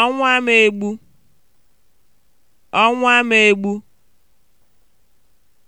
ọnwụ ama egbu ama egbu